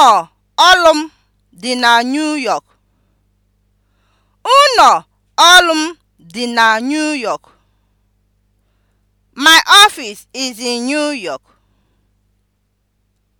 ụnọ ọrụ m dị na New York. dị na New York. My office is in New York.